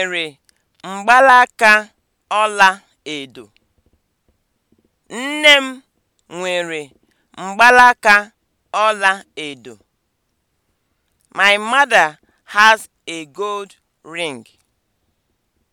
nwere mgbalaka ọla edo. Nne m nwere mgbalaka ọla edo. My mother has a gold ring.